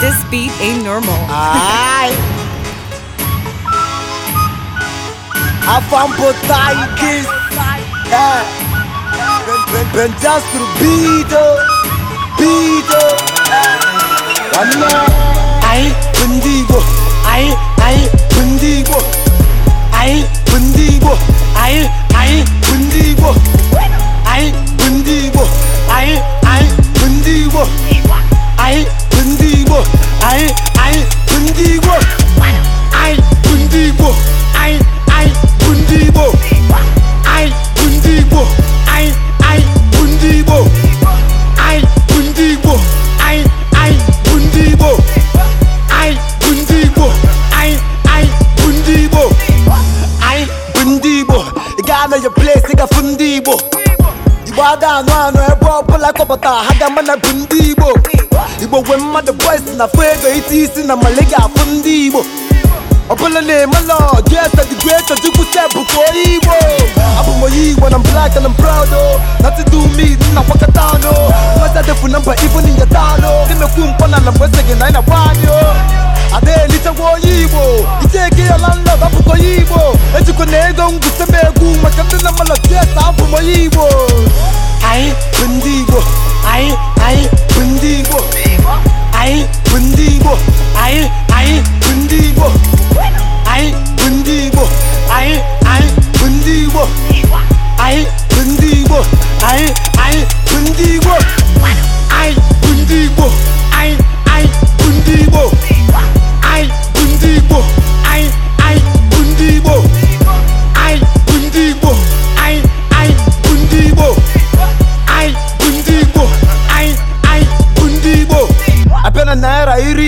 This beat ain't normal. Ay! Afam potaitis! Eh! Pentru bidă! Bidă! Ana! Ai pândigo! Ai, ai pândigo! igbo pândigo! Ai, ai pândigo! Ai Ghana your place nigga fu ndị Igbo Igbo ada anụ anụ ebe ọbụla kọpụta ha ga ama bụ ndị Igbo Igbo nwe mmadụ boys na fụ isi isi na mali ga-afụ ndị Igbo ọbụla na-emelọ jesa digwe chọchukwu sebụ ka onye Igbo abụ m onye Igbo na black and I'm proud o oh. nothing do me nna kwakọta ọnụ mmasị adịfu na mba ibu n'inyata anụ na-emekwu mkpọ na na mgbe gị na anyị na-agba anyị ada-elitekwa onye igbo iteke ya na nla onye igbo na ego ngwute egwu maka ndị na mmadụ tieta abụ onye igbo anyị bụ ndị igbo anyị anyị bụ ndị igbo anyị bụ ndị igbo anyị anyị bụ ndị igbo anyị bụ ndị igbo anyị anyị bụ ndị igbo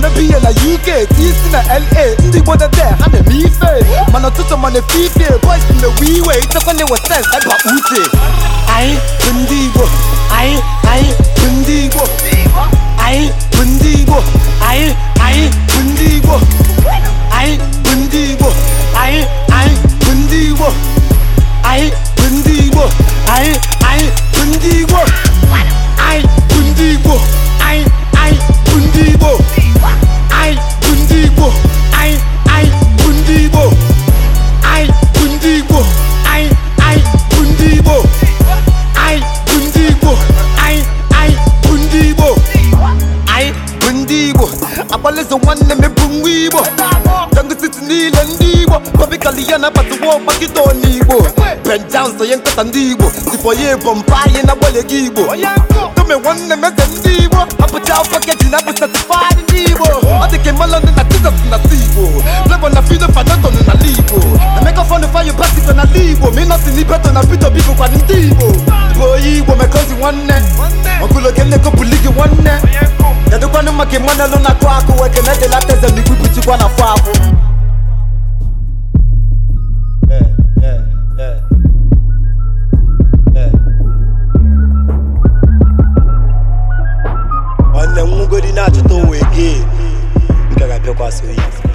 na-eme na UK isi na LA ndị Igbo ha na-eme ife mana ụtụtụ mana na-ewe iwe ndị Igbo anyị ndị ndị Igbo ọkpalịzụ nwanne mepụ nwa igbo dọngụsiti niile ndị igbo kọbikali na nabatụwa ọgbakịta ọna igbo benjam sonye nkata ndị igbo sipọ ya ebọmpa anyị na-agbalị gị igbo tome nwanne m eze ndị igbo apụcha afọ keji na-abụ satifadị ndị igbo ọ dị kwa so